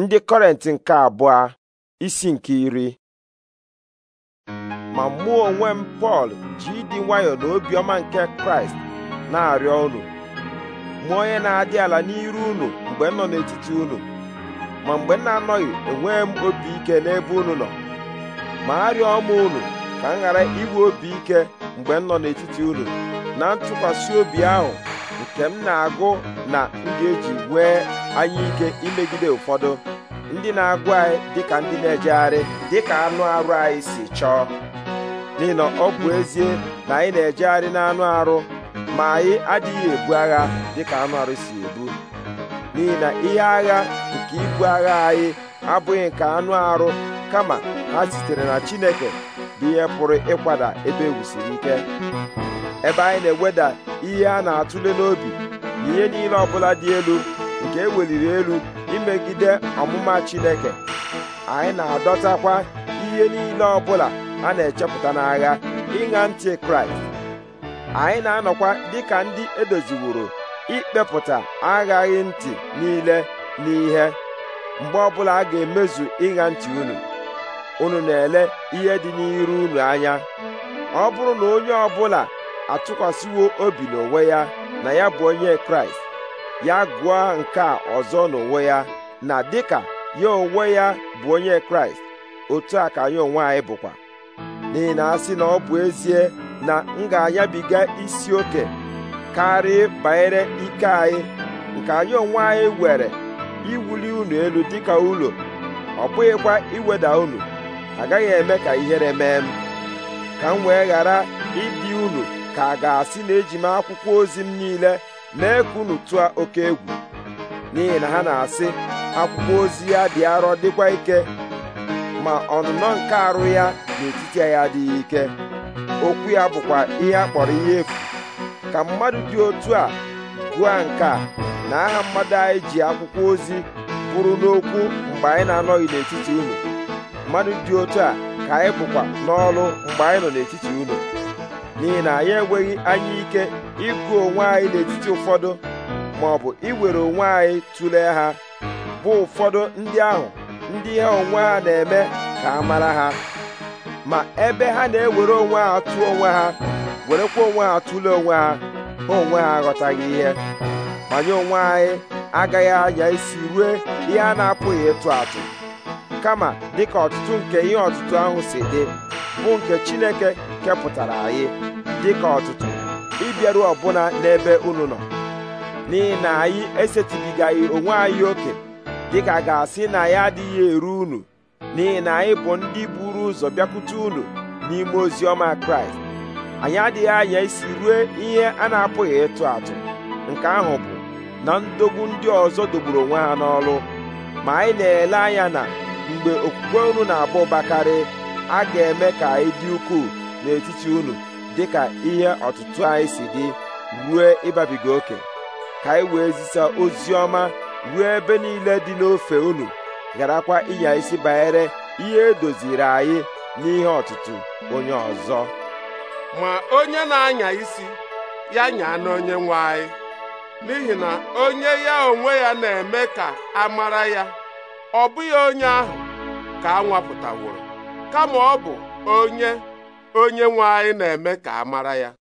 ndị kọrent nke abụọ isi nke iri ma mụ onwe m pọl ji ịdị nwayọọ na obiọma nke kraịst na-arịọ unu mụ onye na-adị ala n'iru unu mgbe m nọ n'etiti unu ma mgbe m na-anọghị enweghị m obi ike n'ebe unu nọ ma arịọ m unu ka m ghara inwe obi ike mgbe m nọ n'etiti unu na ntụkwasị obi ahụ nke m na-agụ na ndị eji nwee anya ike imegide ụfọdụ ndị na-agụ anyị ka ndị na-ejegharị dịka anụ arụ anyị si chọọ n'ihi na ọ bụ ezie na anyị na-ejegharị n'anụ arụ ma anyị adịghị ebu agha dịka anụ arụ si ebu n'ihi na ihe agha nke ibu agha anyị abụghị nke anụ arụ kama ha sitere na Chineke bụ ihe pụrụ ịkwada ebe egwusiri ike ebe anyị na-eweda ihe a na-atụle n'obi na ihe niile ọbụla dị elu nke eweliri elu imegide ọmụma Chineke anyị na-adọtakwa ihe niile ọbụla a na-echepụta n'agha ịṅa ntị Kraịst anyị na-anọkwa dịka ndị edoziworo ikpepụta aghaghị ntị niile n'ihe mgbe ọbụla a ga-emezu ịṅa ntị unu unu na-ele ihe dị n'iru unu anya ọ bụrụ na onye ọbụla atụkwasịwo obi n'onwe ya na ya bụ onye kraịst ya gụọ nke a ọzọ n'onwe ya na dịka ya onwe ya bụ onye kraịst otu a ka anyị onwe anyị bụkwa n'ihi na asị na ọ bụ ezie na m ga-anyabiga isi oke karịa banyere ike anyị nke anyị onwe anyị were iwuli unu elu dịka ụlọ ọ bụghịkwa iweda unu agaghị eme ka ihere mee m ka m wee ghara ịdị unu ka a ga-asị na eji m akwụkwọ ozi m niile mee ka unu tụọ oke egwu n'ihi na ha na-asị akwụkwọ ozi ya dị arọ dịkwa ike ma ọnụnọ nke arụ ya n'etiti ya adịghị ike okwu ya bụkwa ihe a kpọrọ ihe efu ka mmadụ dị otu a gụọ nke a na aha mmadụ anyị ji akwụkwọ ozi kwuru n'okwu mgbe anyị na-anọghị n'etiti unu mmadụ dị otu a ka anyị bụkwa n'ọrụ mgbe anyị nọ n'etiti unu n'ihi na anyị enweghị anya ike ịgụ onwe anyị n'etiti ụfọdụ ma ọ bụ iwere onwe anyị tụlee ha bụ ụfọdụ ndị ahụ ndị ihe onwe ha na-eme ka a mara ha ma ebe ha na-ewere onwe ha atụ onwe ha werekwa onwe ha atụle onwe ha ha onwe ha aghọtaghị ihe manye onwe anyị agaghị anya isi rue ihe a na-apụghị ịtụ atụ kama dịka ọtụtụ nke ihe ọtụtụ ahụ si dị bụ nke Chineke kepụtara anyị dịka ọtụtụ ịbịaru ọbụna n'ebe unu nọ n'ihi na anyị esetịbigaghị onwe anyị oke dịka ga-asị na ya adịghị eru unu n'ihi na anyị bụ ndị buru ụzọ bịakwute unu n'ime ozi ọma kraịst anyị adịghị anya isi rue ihe a na-apụghị ịtụ atụ nke ahụ bụ na ndogbu ndị ọzọ dogburu onwe ha n'ọrụ ma anyị na-ele anya na mgbe okwukwe unu na-abụ bakarị a ga-eme ka anyị dị ukwuu n'etiti unu dịka ihe ọtụtụ anyị si dị ruo ịbabiga oke ka anyị wee zisa ozi ọma ruo ebe niile dị n'ofe unu gharakwa ịnya isi banyere ihe edoziri anyị n'ihe ọtụtụ onye ọzọ ma onye na-anya isi ya nyaa n'onye nwe anyị n'ihi na onye ya onwe ya na-eme ka a mara ya ọ bụghị onye ahụ ka a nwapụtaworo kama ọ bụ onye onye nwe anyị na-eme ka a mara ya